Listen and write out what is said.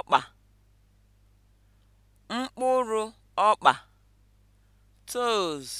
ọkpa mkpụrụ ọkpa (toes)